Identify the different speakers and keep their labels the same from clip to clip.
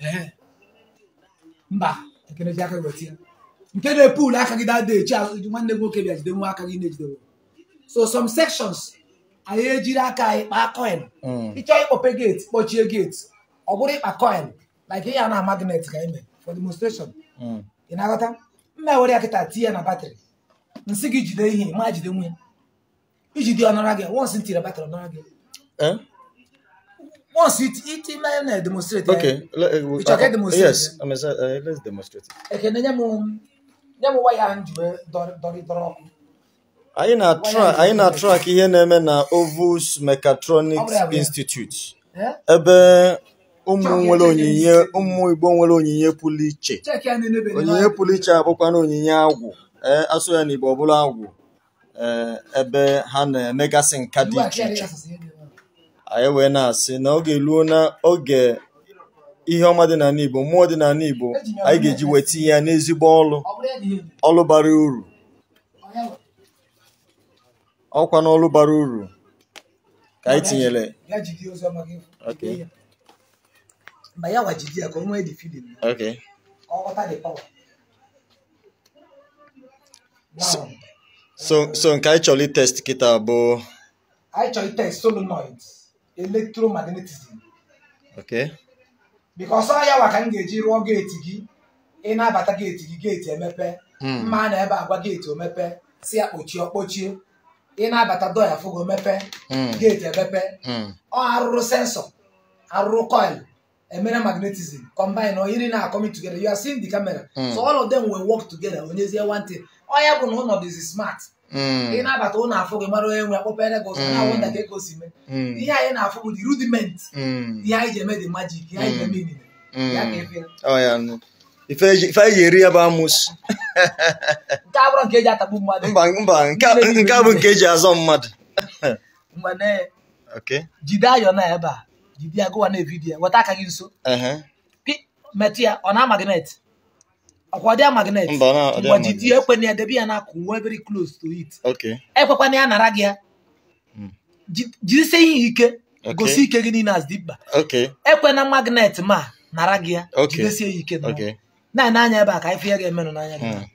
Speaker 1: Eh. mba ekene ji aka weta nke na-epul aka gị dada echi azụ nwanne nwoke bịa jide nwa aka gị na-ejidewo so some sections anyị ejiri aka anyị kpaa coin hmm. ịchọ ịkpọpe gate kpọchie gate ọ bụrụ ịkpa coin like ihe a na magnet ka ime, e for demonstration hmm. ị na-aghọta mma were ya kịta tie na batrị nsị gị jide ihe ma jide nwe ijide ọ gị once ntiri batrị ọ gị eh? Once it, it, ọ, na demonstrate. Okay,
Speaker 2: let, eh, uh, demonstrate. Yes, I mean, uh, let's demonstrate.
Speaker 1: Okay, na nyamu nyamu why hand you dori dori doro.
Speaker 2: Anyị na-atrak anyị na-atrak ihe na-eme na Ovus Mechatronics Institute eh? ebe ụmụ nwere onyinye ụmụ Igbo nwere onyinye pụrụ iche onyinye pụrụ iche abụkwa na onyinye agwụ eh, asụ ya na Igbo ọ agwụ ebe ha na-emegasị nka dị iche iche anyị wee na-asị na oge eluo na oge ihe ọma dị n'ala Igbo mmụọ dị n'ala Igbo anyị ga-eji wee tinye ya n'ezigbo ọlụ ọlụ bara uru ọkwa n'ọlụ bara uru ka anyị tinyere okay so so nke anyị chọrọ itest kịta bụ
Speaker 1: anyị chọrọ itest solenoids electromagnetism okay because ọ ya ka m ga-eji rụọ geeti gị ị na-abata geeti gị geeti emepe hmm. mma na ebe agwa geeti omepe si ya kpochie ọkpochie ị na-abata doya fogo mepe hmm. geeti emepe hmm. ọ arụrụ sensọ arụrụ coil emere magnetism combine or iri na-acoming together you are seeing the camera so all of them will work together onyezie one thing ọ ya bụ na ụnọdụ smart Hmm. ị na-abata ụlọ afọ gị mara onye nwe akpọpere gị
Speaker 3: ụzọ na-awụ nta ka ego si mee hmm. ihe
Speaker 1: anyị na-afụ bụ rudiment hmm. ihe anyị ji eme dị majik ihe anyị ji eme
Speaker 2: inine ya ka efe ife anyị ji eri ya bụ amus.
Speaker 1: nke abụrụ nke eji atagbu mmadụ mba mba nke a bụ nke
Speaker 2: eji azọ mmadụ mgbe jide
Speaker 1: ayọ na ebe a jide ya gụwa na evidiyo weta aka gị nso metụ ya ọ na-ama gị net ọkwa ọdịa magnet mgbajidi ekwena ya debe ya n'akụkụ nwe very close to it ekwekwana ya nara gị ya hmm. jidesie ihe ike gosi ike gị niile as dimkpa ekwena magnet ma nara gị ya
Speaker 2: jidesie ya ike
Speaker 1: na-ene anya ebe a ka ife ya ga-emenụ n'anya gị
Speaker 2: hmm.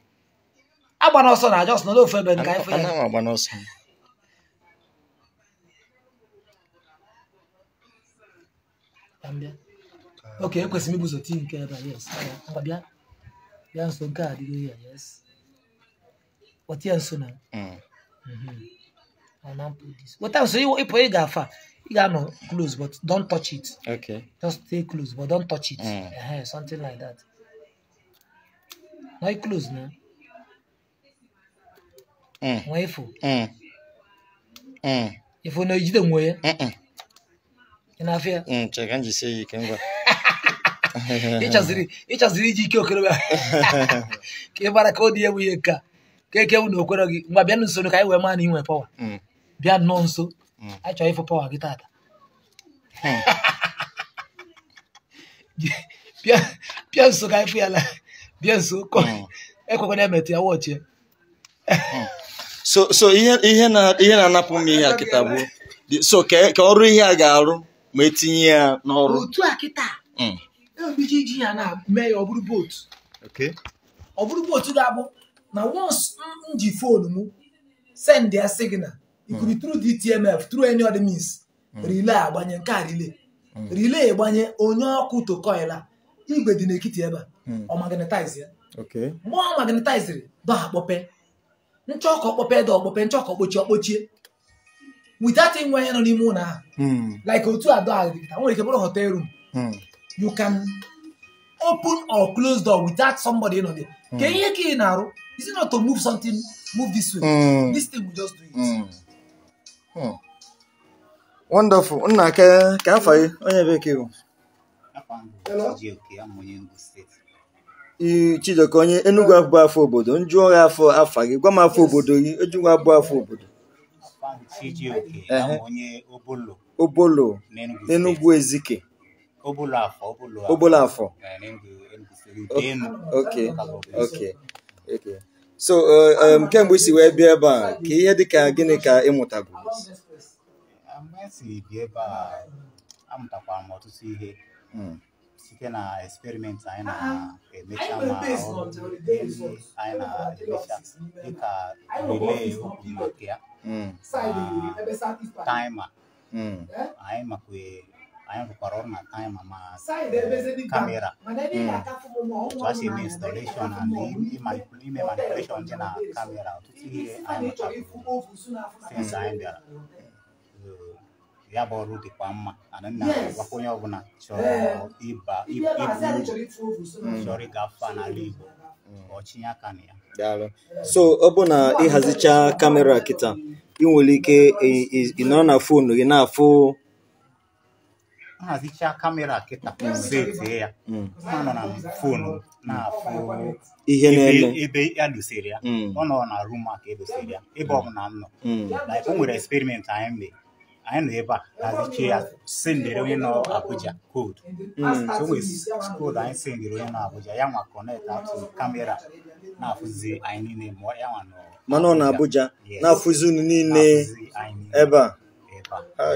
Speaker 2: agbana ọsọ na jos n'ofe ebe ka ife ya
Speaker 1: ok ekwesịrị m ibuzote nke ebe a yes ngwa bịa yan so God hallelujah yes what yan so now
Speaker 2: mm. mm I'm put
Speaker 1: this what else you if you gafa you got no close but don't touch it okay just stay close but don't touch it mm. uh-huh, something like that not close now mm. when you
Speaker 2: mm. mm. if you know you don't wear mm -mm. in fear mm, check and you say you can go
Speaker 1: ịchaziri iji ike okorobịa ka ị bara ka ọ dị ewu ihe ka ka eke wụ na okwere gị mgbe bịa nso ka anyị wee maa na inwe pawa mm. bịa nnọọ nso mm. anyị chọrọ ịfụ pawa gị tata hmm. bịa nso ka anyị fụ ya la bịa nso hmm. ekwekwana emetụ ya wọchie
Speaker 2: hmm. so so ihe na-anapụ m ihe akịta kịta bụ so ka ọrụ ihe a ga-arụ ma etinye ya n'ọrụ
Speaker 1: ebido iji ya na mee ya ọ bụrụ bootu ọ bụrụ bootu ga-abụ na once m ji fon m send ya signal ikuru hmm. tru DTMF tru any other means hmm. relay agbanye nke a relay hmm. relay gbanye onye ọkụ tokoila igwe dị n'ekiti ebe a ọ magnetize ya mgbe ọ magnetiziri dọha kpọpe nchọkọ kpọpe da ọkpọpe nchọkọ kpochie ọkpochie without inwe onye nọ n'ime ụlọ ahụ like otu a dọha nwere ike bụrụ hotel room you can open or close door without somebody you know there. Mm. Can you get narrow? Is it not to move something, move this way? Mm. This thing will just do it. Mm.
Speaker 2: Hmm. Wonderful. Nna ka ka afọ gị onye bekee bụ? Chijioke onye Enugu abụ afọ obodo, nju gị afọ afa gị, gwa m afọ obodo gị, ejugwu abụ afọ obodo.
Speaker 3: Chijioke onye
Speaker 2: Obolo. Obolo, n'Enugu Ezike.
Speaker 3: obulafo obulafo obulafo
Speaker 2: okay okay okay so kemgbe isi wee bịa ebe a ka ihe dịka gịnị ka ịmụtagoro
Speaker 3: esi amụtakwara m ọtụtụ ihe site na eksperimenti anyị na-emecha ma anyị na-emecha dịka rilee okwu ya taima anyị makwa aya ye parole na kan mama camera hmm.
Speaker 1: just in installation and in
Speaker 3: manipulation tena camera tuti an
Speaker 1: ye since an ye bɛra
Speaker 3: ya bɔ olu de k'an ma ani na wakoɲɛ bɛna sɔrɔ i ba i bulu sɔrɔ i ka fa n'ale bɔ ọchịnya ya daalụ so
Speaker 2: ọ na ịhazicha kamera kịta ị nwere ike ịnọrọ na fonu gị na-afụ
Speaker 3: nhazichaa ah, kamera kịta mm. mm. pụzetie ya a nọ na fonu na-afụ ebe ya dosere ya mm. ọ nọ na rum maka edosere ya ebe ọbụla m nọ o nwere eksperimenti anyị mere anyị nọ ebe a hazichie ya sendere onye nọ Abuja koodu so nwere koodu anyị sendere onye nọ Abuja ya nwa kọnekt atụ kamera na-afụzi anyị niile ma ya nwa nọ mana ọ na Abuja na-afụzi unu niile ebe
Speaker 2: a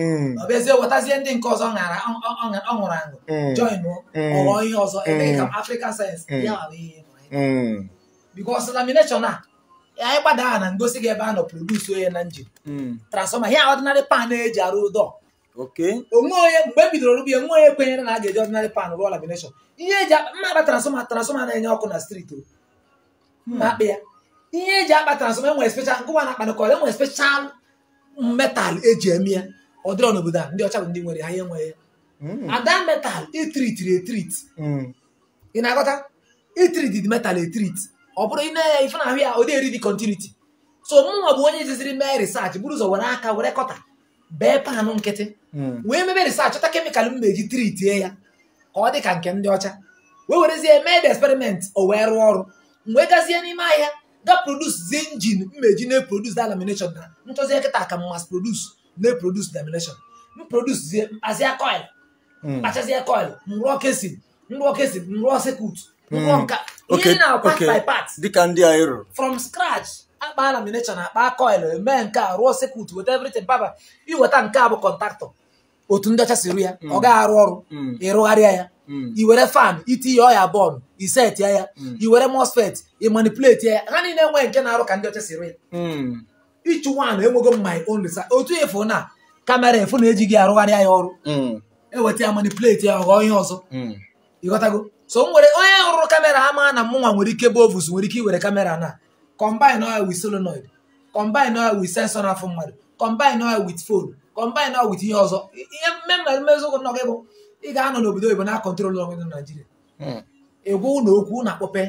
Speaker 1: Mm. ọ bụ ezie wetazie ndị nke ọzọ ọ ṅụrụ aṅụ
Speaker 3: mm. join mm. ọghọ ihe ọzọ emeghị ka
Speaker 1: African sayensị ya ghara
Speaker 3: ihe
Speaker 1: because lamination a anyị gbada aha na ngosi gị ebe a nọ produce onye na njin transfọma ihe ọdịnarị pan eji arụ ụdọ onwe onye mgbe e bidoro rụbie nwe onye kwenyere na a ga-eji ọdịnarị pan rụọ lamination ihe eji mma akpa transfọma transfọma na-enye ọkụ na striti. o hmm. mma akpa ya ihe eji akpa transfọma enwere special nkụwa na akpanakọ enwere special metal eji eme ya ọ dịrọ n'obodo a ndị ọcha bụ ndị nwere ha ihe nwere hmm. ada metal itritiri e etrit hmm. ị na-agọta itritid e metal etrit ọ bụrụ ị na-enye ife na ahụ ya ọ dị eri dị kontiniti so mụnwa bụ onye jiziri mee risachị bụrụ ụzọ were aka were kọta bee panụ nkịtị hmm. wee mebe risachị chọta kemịkal m na-eji tritie ya ka ọ dị ka nke ndị ọcha wee werezie mee de eksperimenti o wee rụọ ọrụ mgbe gazie n'ime ahịa ga produs zi injin mmeji na-eprodus da lamination na nchọzie nkịta ka mas na-eprodus lamination m produsie mkpazie coil mkpachazie hmm. coil nrụọ kesin nrụọ kesin nrụọ sekut nrụọ nka ihe na part by
Speaker 2: part dịka ndị anyị rụrụ
Speaker 1: from scratch akpa lamination akpa coil mee nke a rụọ sekut weta everything baba iweta nke a bụ kọntaktọ
Speaker 2: otu ndị ọcha siri ya hmm. ọ gaghị arụ ọrụ hmm.
Speaker 1: ịrụgharịa ya iwere fan itinye ọya bọọlụ isetịa ya iwere mosfet ịmanipuleti ya ha niile enweghị nke na-arụ ka ndị ọcha siri ya ịchụ nwaanyị enwego my own research otu efu na kamera efu na-ejighị arụgharịa ya ọrụ eweta ya manipuleti ya ghọọ ihe ọzọ ịghọtago so nwere onye rụrụ kamera ama na mụnwa nwere ike bụ ovus nwere ike iwere kamera na combine oil with solenoid combine oil with sensor n'afọ mmadụ combine oil with phone combine oil with ihe eh, eh, ọzọ ihe mmemme mmeziokwu nọ gị bụ ị ga-anọ n'obodo oyibo na kọntrol ọnwe na naijiria ịgwa hmm. ụlọ okwu na akpọpe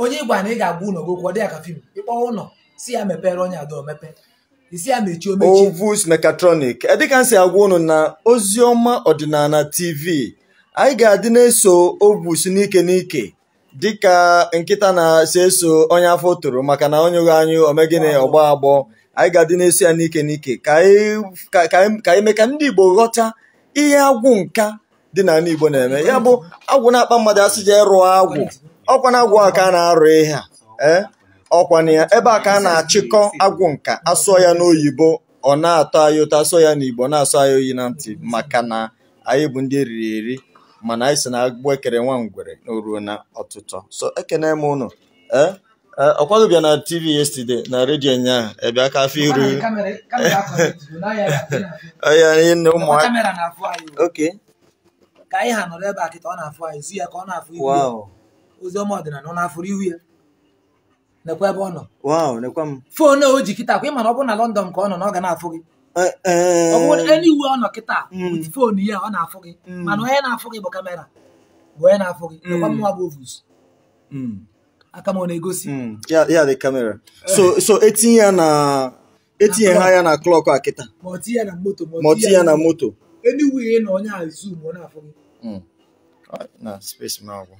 Speaker 1: onye ịgwa na ị ga-agwa ụlọ gị okwu ọ dị ya ka fim ịkpọ ụlọ si ya mepere onye ada omepe
Speaker 2: isi ya mechie omechi Ovus Mechatronic edịka m si agwa unu na oziọma ọdịnala TV anyị ga-adị na-eso Ovus n'ike n'ike dịka nkịta na-eso eso onye afọ toro maka na onye ụgha anyị omegịnị ọgbọ agbọ anyị ga-adị na-eso ya n'ike n'ike ka anyị mee ka ndị Igbo ghọta ihe agwụ nka dị n'ala Igbo na-eme ya bụ agwụ na-akpa mmadụ asị ịrụ rụọ agwụ ọkwa na agwụ aka a na-arụ ihe a eh? ọkwana ya ebe a ka a na-achịkọ agwụ nka asụọ ya n'oyibo ọ na-atọ anyị ụtọ asụọ ya n'igbo na-asụ anyị oyi na ntị maka na anyị bụ ndị eriri eri mana anyị si na agbụ ekere nwa ngwere ruo na ọtụtụ so ekene m ụnụ e, e, ọkwadobịa na tv yesterday na redio ụnyaahụ ebe aka afọ iru onye nne ụmụaka okay
Speaker 1: ka anyị ha nọrọ ebe a kịta ọ na-afụ anyị zu ya ka ọ na-afụ ihu ya ozi ọma ọdịnala ọ na-afụrụ ihu ya nekwa ebe ọ nọ foonu o ji kịta kwa ị mana ọ bụ na lọndọn ka ọ nọ na ọ ga na-afụ gị ọ bụrụ eniwe ọ nọ kịta foonu mm. ya ọ na-afụ gị mm. mana onye na-afụ gị bụ kamera bụ onye na-afụ gị mm. nekwa mụnwa bụ ovus
Speaker 2: aka m ọ na-egosi ya dị kamera so etinye ya na etinye ha ya na klọk a kịta
Speaker 1: ma ọ ya na moto ma ya na moto eniwe ị na onye a zoom ọ na-afụ gị
Speaker 2: na space m agwụ